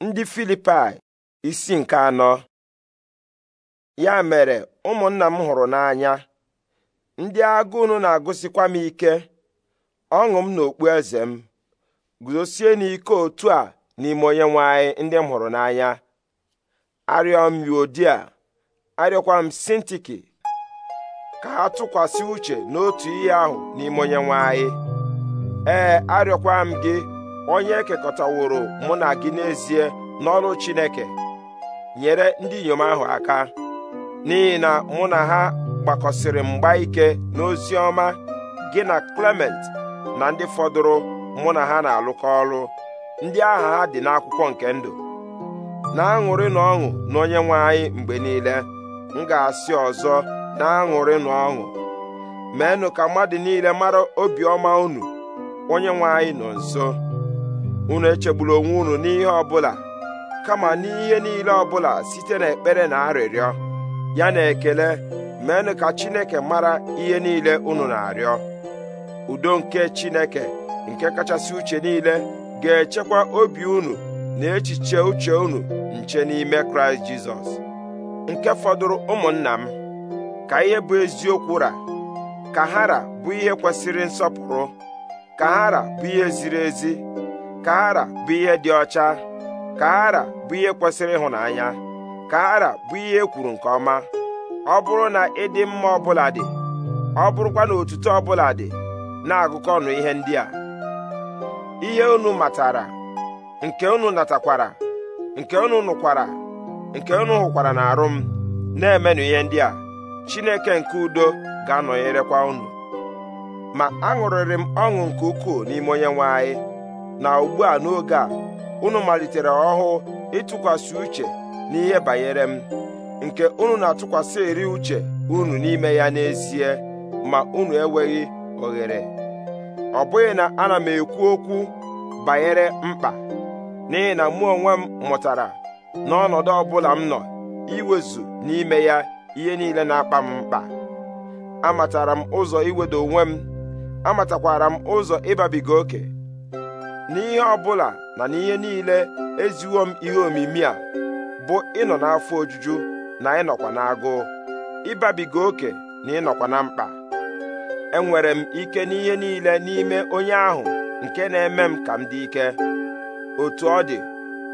ndị Filipai isi nke anọ ya mere ụmụnna m hụrụ n'anya ndị agụ na-agụsikwa m ike ọṅụ m na okpu eze m guzosie n'ike otu a n'ime onye nwanyị ndị m hụrụ n'anya arịọ m yodia arịọkwa m sintiki ka ha tụkwasị uche n'otu ihe ahụ n'ime onye ee arịọkwa m gị onye ekekọtaworo mụ na gị n'ezie n'ọrụ Chineke nyere ndị inyom ahụ aka n'ihi na mụ na ha gbakọsịrị mgba ike n'ozi ọma gị na Clement na ndị fọdụrụ mụ na ha na-alụkọ ọrụ ndị aha ha dị n'akwụkwọ nke ndụ na-aṅụrị na ọṅụ na onye nwe anyị mgbe niile m ga-asị ọzọ na-aṅụrị na ọṅụ meenụ ka mmadụ niile mara obiọma unu onye nwe anyị nọ nso unu echegbula onwe unu n'ihe ọbụla kama n'ihe niile ọbụla site n'ekpere na arịrịọ ya na ekele meenụ ka Chineke mara ihe niile unu na-arịọ udo nke Chineke nke kachasị uche niile ga-echekwa obi unu na echiche uche unu nche n'ime Kraịst Jizọs nke fọdụrụ ụmụnna m ka ihe bụ eziokwu ra ka hara bụ ihe kwesịrị nsọpụrụ ka hara bụ ihe ziri ezi kara bụ ihe dị ọcha kara bụ ihe kwesịrị ịhụnanya kara bụ ihe ekwuru nke ọma ọ bụrụ na ịdị mma ọbụla dị ọ bụrụkwa na otuto ọbụla dị na-agụkọ ọnụ ihe ndị a ihe unu matara nke unu natakwara nke unu nụkwara nke unu hụkwara na arụ m na-emenụ ihe ndị a Chineke nke udo ga-anọnyerekwa unu ma aṅụrịrị m ọṅụ nke ukwuu n'ime onye nwe anyị na ugbu a n'oge a unu malitere ọhụụ ịtụkwasị uche n'ihe banyere m nke unu na-atụkwasị eri uche unu n'ime ya n'ezie ma unu enweghị oghere ọ bụghị na ana m ekwu okwu banyere mkpa n'ihi na mụ onwe m mụtara n'ọnọdụ ọ bụla m nọ iwezu n'ime ya ihe niile na-akpa m mkpa amatara m ụzọ iwedo onwe m amatakwara m ụzọ ịbabiga oke n'ihe ọbụla na n'ihe niile eziwo m ihe omimi a bụ ịnọ n'afọ ojuju na ịnọkwa n'agụụ ịbabiga oke na ịnọkwa na mkpa enwere m ike n'ihe niile n'ime onye ahụ nke na-eme m ka m dị ike otu ọ dị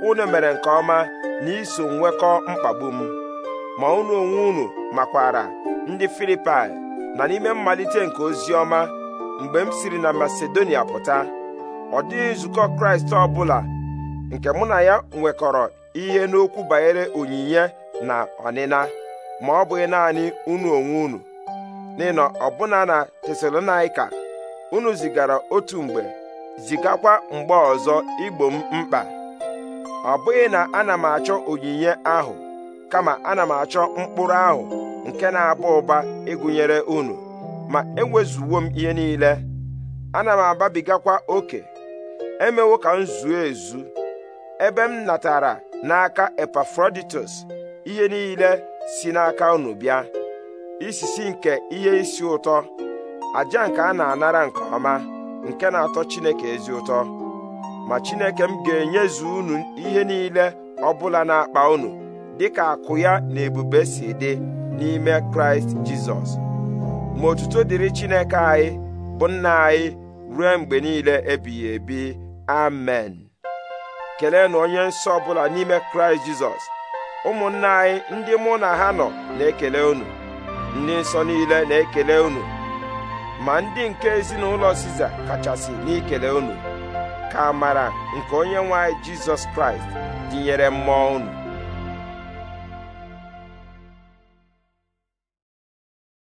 unu mere nke ọma na iso nwekọ mkpagbu m ma unu onwe unu makwara ndị Filipai na n'ime mmalite nke ozi ọma mgbe m siri na Masedonia pụta ọ dịghị nzukọ kraịst ọ bụla nke mụ na ya nwekọrọ ihe n'okwu banyere onyinye na ọnịna ma ọ bụghị naanị unu onwe unu n'ịnọ ọbụna na tesalonaika unu zigara otu mgbe zigakwa mgbe ọzọ igbo m mkpa ọ bụghị na ana m achọ onyinye ahụ kama ana m achọ mkpụrụ ahụ nke na-aba ụba ịgụnyere unu ma enwezuwo m ihe niile ana m ababigakwa oke emewo ka m zuo ezu ebe m natara n'aka Epafroditus ihe niile si n'aka unu bịa isisi nke ihe isi ụtọ aja nke a na-anara nke ọma nke na-atọ Chineke ezi ụtọ ma Chineke m ga-enyezu unu ihe niile ọbụla na-akpa unu dịka akụ ya na ebube si dị n'ime Kraịst Jizọs ma otuto dịrị Chineke anyị bụ nna anyị ruo mgbe niile ebighị ebi amen kelenụ onye nsọ ọbụla n'ime kraịst jizọs ụmụnna anyị ndị mụ na ha nọ na-ekele unu ndị nsọ niile na-ekele unu ma ndị nke ezinụlọ siza kachasị n'ikele unu ka mara nke onye nwe jizọs kraịst dịnyere mmụọ unu